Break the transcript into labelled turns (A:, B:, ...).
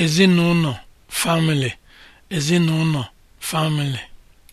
A: ezinụlọ family ezinụlọ family